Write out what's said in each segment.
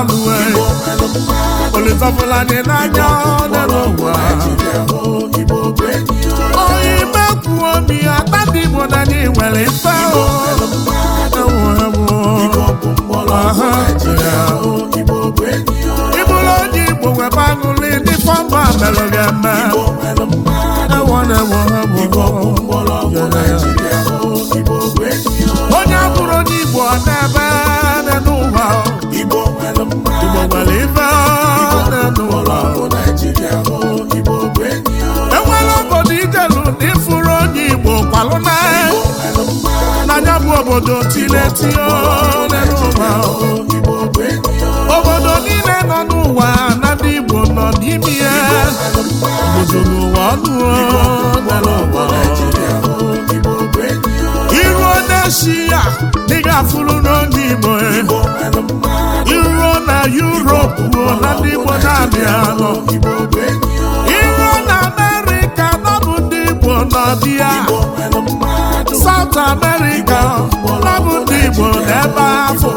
abụwe olitafụla dị n'anya n'elu ụwa onye ime kwuo m ihe ata ndị Igbo na anyị nwere mfe ịbụrụ onye Igbo webe aṅụlị ndị fọmba mere gị eme onye abụrụ onye Igbo n'ebe. obodo tileti n'ụwa obodo niile nọ n'ụwa na ndị nọ n'ime ya obodo n'ụwa iruo n'eshi ya dị ga-afụrụ n'oge Igbo iruo na Yuropu na ndị Igbo na-abịa igbo nọ South America na bụ ndị igbo n'ebe afọ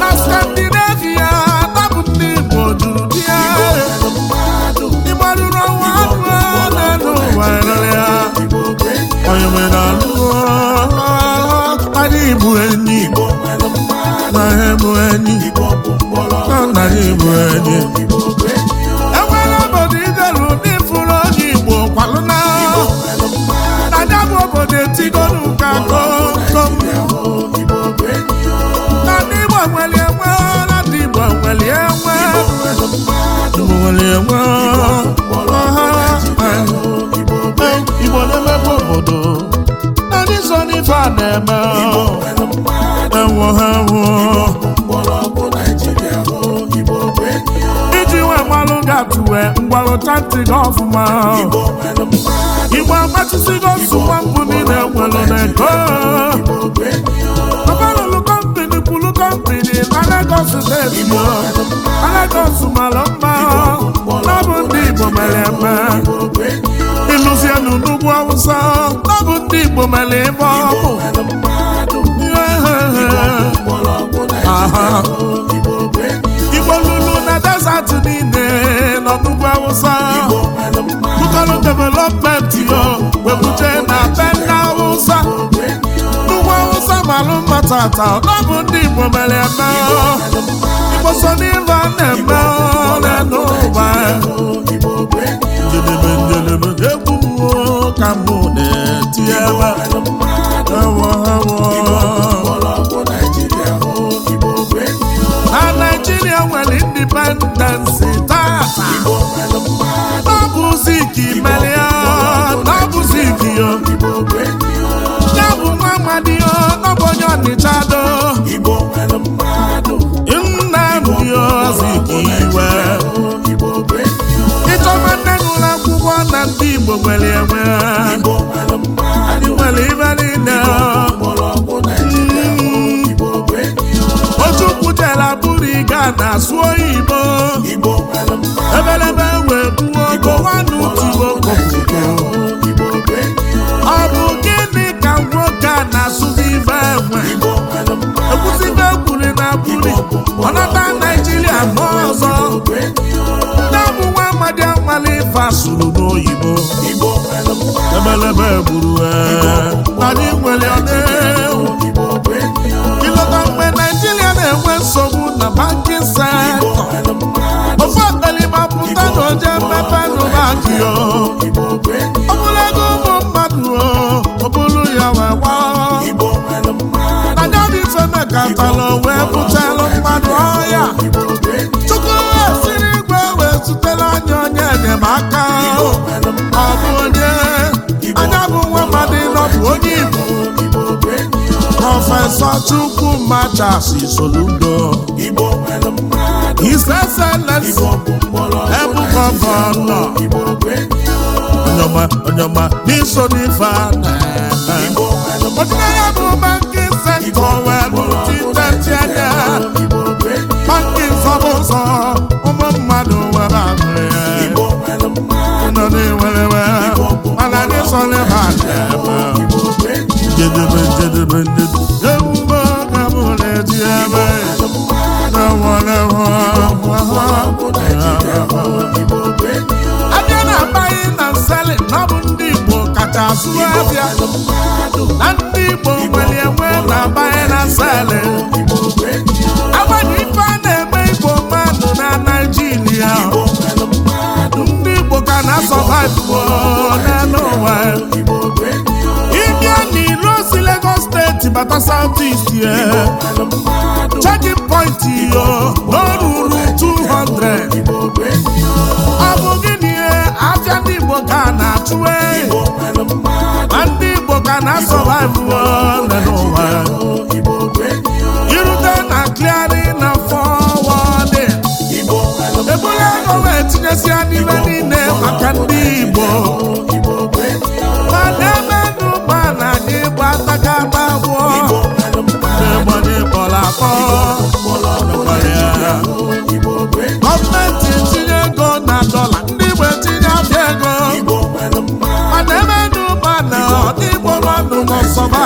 na Scandinavia na bụ ndị igbo juru bịa ịgbarụrụ nwa anụ na ụwa ya onye nwere alụ anyị bụ enyi na ha bụ enyi na nna ya ọja etigonu ka na ndị Igbo nwere enwe na ndị a ha tụwe mgbarụta ntị gị igbo agbachisigo nsụwa mbụ niile nwere n'ego ọbalụlụ kọmpini kwulu kọmpini na Lagos steeti na Lagos mara mma na ọ bụ ndị igbo mere eme ịlụzienụ n'ugwu awụsa na ndị igbo mere ịbụ. ọkụ igbo lulu na desat niile nọ n'ugwu awụsa Bukalo development yo webuje na be ndị awụsa n'ugwu awụsa malụ ndị igbo mere eme na-eme Naijiria nwere indipendensi taa n'ọbụzi ike mere ya n'ọbụzi ike ya ya bụ nwa amadi ya n'ọbụ onye ọnịcha do Nnamdi Azikiwe ịchọma nne gụrụ akwụkwọ na ndị Igbo nwere enwe ndị Ghana sụọ Igbo ebelebe wee gbuo ogowanụ tuo ọ bụ gịnị ka nwoke a na-asụzi ife enwe ekwuzibe ekwuri na buri ọnata Naijiria ma ọzọ nne bụ nwa amadi amali ife asụrụ n'oyibo ebelebe gburu e. anyị nwere ọdị banki se, ofe ọkaliba pụta na mmepe ọ ụmụ mmadụ ọ bụrụ ya wee gbaa wee bụchalụ mmadụ ọhịa wee anya onye anya onye prọfesọ chukwu machas soludo iseselesi ebugọgọnọ onyoma n'iso n'ife ọdịnaya bụ banki sentọ weluchitetịanya banki ụmụ mmadụ ahụ ya nọ na mana asụ na ndị Igbo nwere enwe na-abanye na sale agbanị ife a na-eme Igbo mmadụ na Naịjirịa. ndị Igbo ka na-asọvaivuo n'elu ụwa ịbịa n'ilo si Lagos steeti bata South East checking point yo o ruru 200 ọ bụghị gịnị eh? abịa ndị Igbo ka na-achụwe eh? na asọvaivu ole n'ụwa irute na kliari na fọwọdị ebule gọva etinyesia n'ime niile maka ndị igbo mana na anyị gba abụọ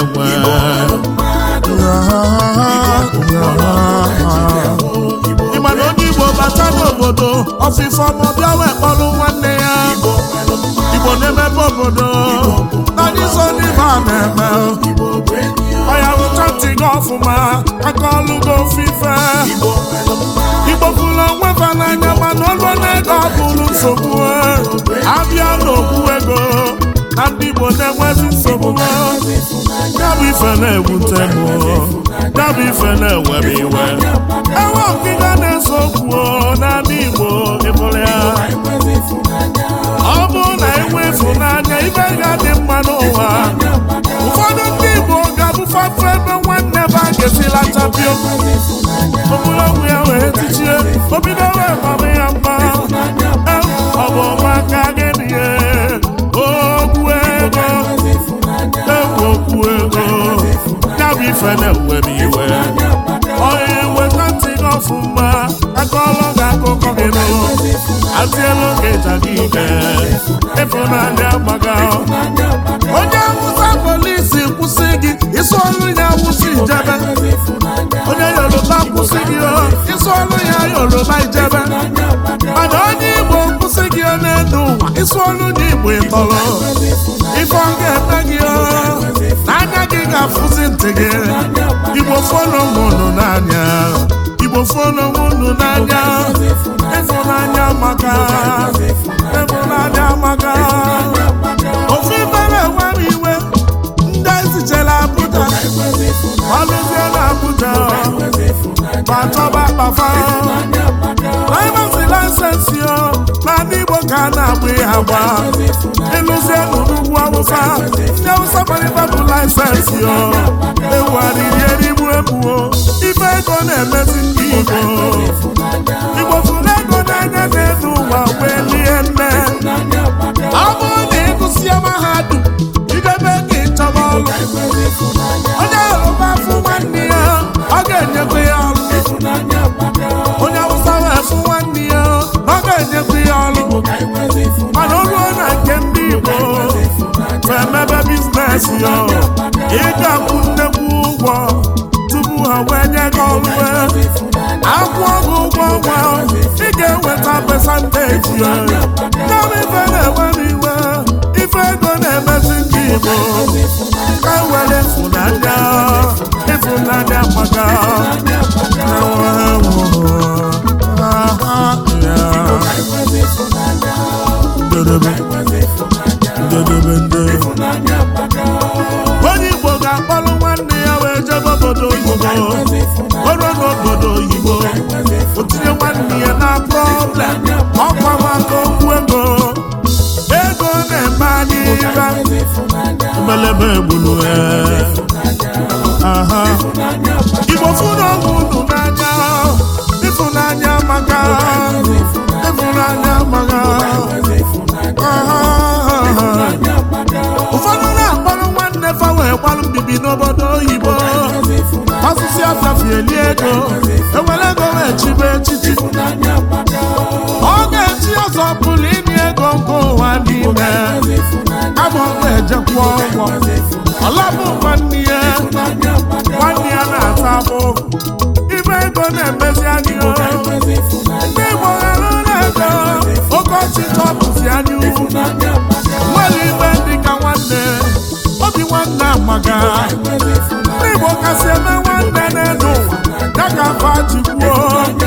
enwe ịma na onye igbo bata n'obodo ọfịfọ ma ọ wee nwanne ya igbo na-emepe obodo anyị so n'ibe a na-eme ọya rụcha ntị ọfụma aka ọlụ gị ofufe igbo kwuru onwe ba n'anya mana ọlụ na-ego ọ nsogbu ha ndị Igbo na-enwezi nsogbu ya ife na-egbu ntemu ya ife na-enwebe iwe enwe ngịga na-ese okwu n'ala Igbo ịbụrụ ya ọ bụrụ na enwe ịfụnanya ibe ga-adị mma n'ụwa ụfọdụ ndị Igbo ga-abụfafe ebe nwanne be a ga-esila tapio ya wee tichie obido wee mama ya mma ịfụrụ na onye awụsa polisi kwụsị gị isi ọrụ ya awụsa ijebe onye yoruba kwụsị gị isi ọrụ ya yoruba ijebe mana onye igbo kwụsị gị n'elu ụwa isi ọrụ ndị igbo ịtọrọ ife ọ ga-eme gị n'anya gị ga-afụzi ntị gị igbo fọnụ mụnụ n'anya igbo fọnụ mụnụ n'anya ịfụnanya maka afa laịsensị laịsensị na n'ala Igbo ka a na-agba ya agba ịlụzie n'ugwu awụsa ndị awụsa gbarịta bụ laịsensị o ewugharịri erigbu ebuo ife ego na-emezi ndị Igbo Igbo fụrụ ego n'anya na-enu ụwa wee lie nne ego ka were funanya efunanya maka mbelebe egbulu e. igbo fụnahụ unu n'anya ịfụnanya maka ịfụnanya maka ụfọdụ na-akpọrọ nwanne fa wee gbalụ mbibi n'obodo oyibo asụsụ asafieli ego ewere ego wee chibe echichi ọ ga-echi ọzọ pụrụ ịnye ego nke ụwa n'ime ọgwụ ejekwa ụgwọ ọlabụ nwanne ya nwanne ya na-ata abụ ime ego na-emezi anyị ndị Igbo ghara na-ede oke ọchịchọ bụzi anyị nwere igbe dị ka nwanne obi nwanne amaga ndị Igbo kasị eme nwanne na-edo ụwa ya ka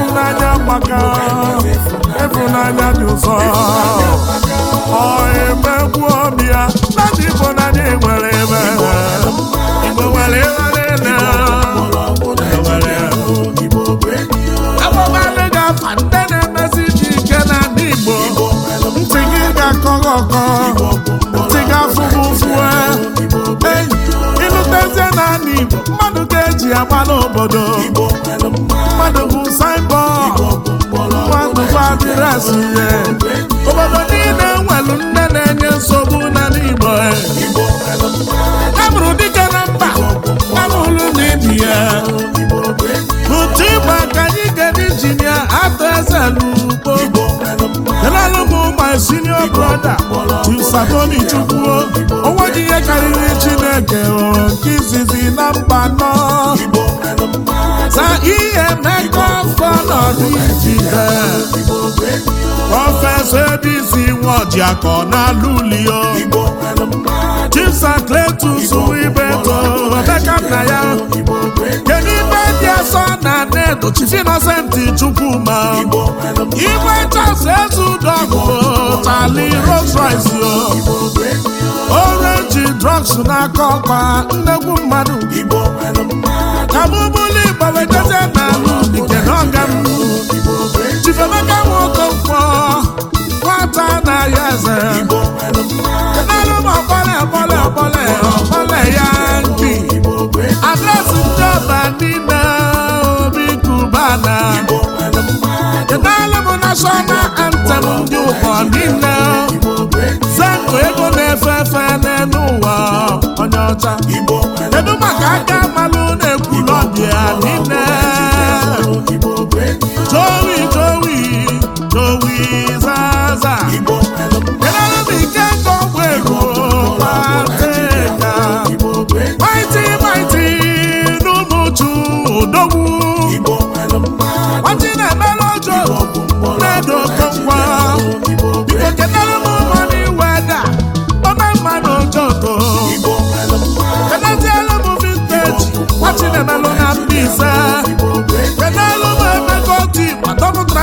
ịfụnanya gbaka ịfụnanya dị ụzọ ọ emegbu bịa ya na ndị Igbo na ndị nwere ebe Igbo nwere ebe niile nwere agbụgbalị na na na na mmadụ ga-eji agba n'obodo mmadụ bụ saim Chineke nke na mba nọ na ihe mmekọ afọ nọdụ ijide prọfesọ ebisi akọ na lulio Chief Innocent Chukwuma igwe chasị ezudogụ tali Rolls Royce orenji drugs na ọkpa nnekwu mmadụ kabụbụli gbawejezie n'ala udike n'ọga m Chief Emeka nwoke mkpọ nwata na ya eze kenara m ọkpọle ọkpọle ọkpọle ọkpọle ya nki adresị ndị ọba niile mana edela m national antem ndị ụkọ niile zenụ ego na-efe efe n'elu ụwa onye ọcha kedu maka aka amalụ na-ekwu n'ọbịa niile jowi jowi jowi zaza m ike nke ego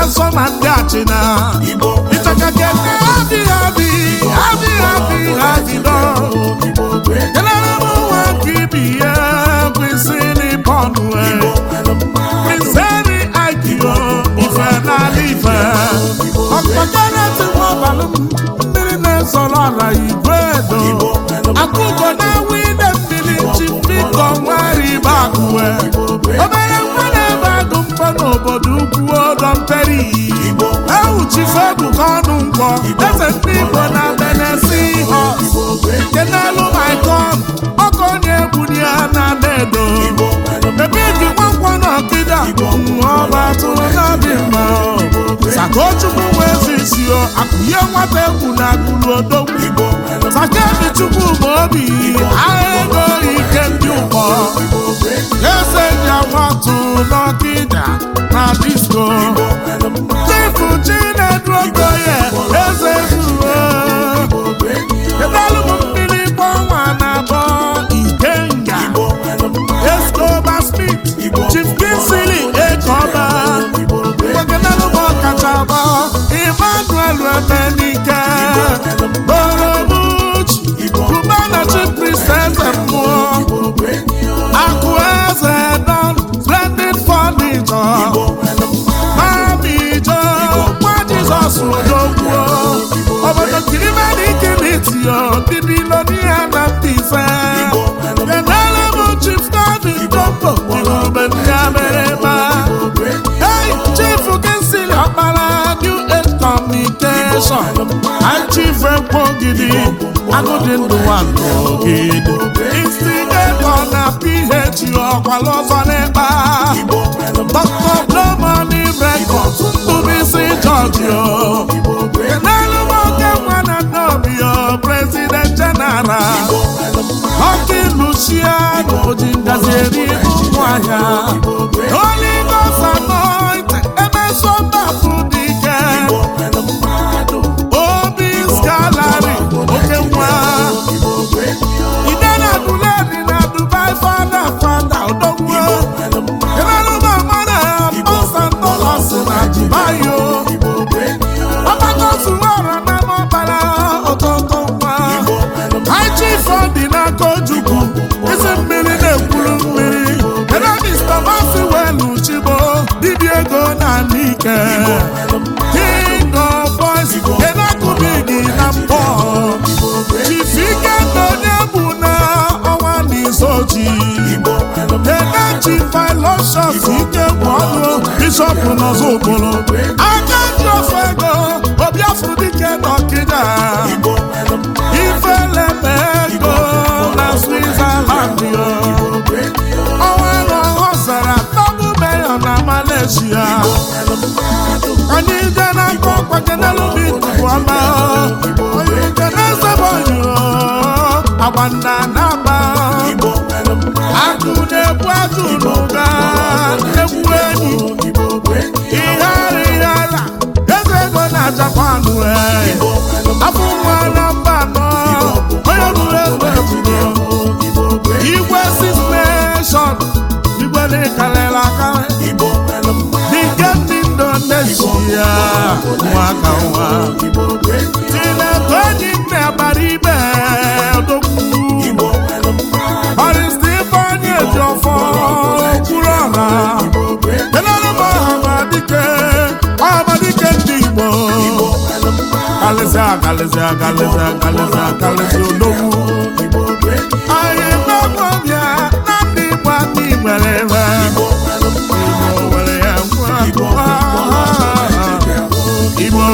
asọ na ndị achịna ịchakake adịghị adị adịghị adị adịdọ kenara m nwa nke ibi ya bụ isi e, miseri agio ife n'ala ife ọkpọkpọrọtịwabalụ mmiri na-ezoro ala igwe edo akụkọ na-awụ ide mmiri akụwe obere nwa na pere iyi ewuchife ebuka ọnụ mkpọ eze ndị igbo na benesi họ nke n'elu maikon ọkọ onye ebunye ya na dedo ebe ebi nwankwọ na ọkịda ọba atụrụ na-adị mma sakochukwu wee akụnye nwata egwu na akụrụ odogwu dị chukwu ma obi ahụ ego ike ndị ụkọ eseja watu n'ọkịda na disko chifu chinedu okoye eze Jason achivekpo gidi agụdị ndụ nwandụ Isi instigatọ na PH ọkwala ọzọ n'ịkpa dọkta Blomani rekọd Bubisi George n'elu nwoke nwana nnobio prezident jeneral ọkị Lucia oji ngazi eri ụmụahịa oligosanọ ebe sọmbapụ King of boys Enakubidi na mbọ Chifike onye egwu na na ọnwa n'isochi Enachi Filosof ike bụ ọnụ Bishop Nọzọ Okporo Aka ndofe ego Obiafọ dike n'Ọkịja Ifele ego na Switzerland Ọnwa na ọhọ zara Tọgbu Mayor na Malaysia onye ije na-akọ ọkpọke na-esebe onyiro agba nna na-agba agụ na-ebu egwu ego na-achakwa akalịsị akalịsị akalịsị akalịsị odogwu anyị gbagwo na ndị igbo aka nwere ebe igbo nwere ya nwa igbo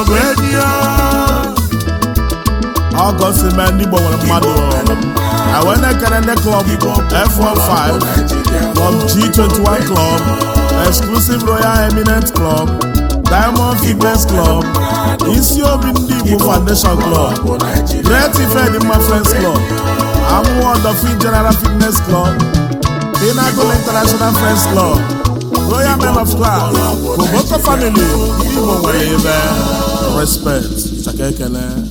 bụ enyi ya ọgọ ndị klọb f five club g one club exclusive royal eminent club Diamond fitness Club isi obi ndị Igbo Foundation Club Great my Friends Club Amuwo Odofin General Fitness Club pinagol International Friends Club Royal Men of Class Koboko Family ndị Igbo nwere ebe respect chaka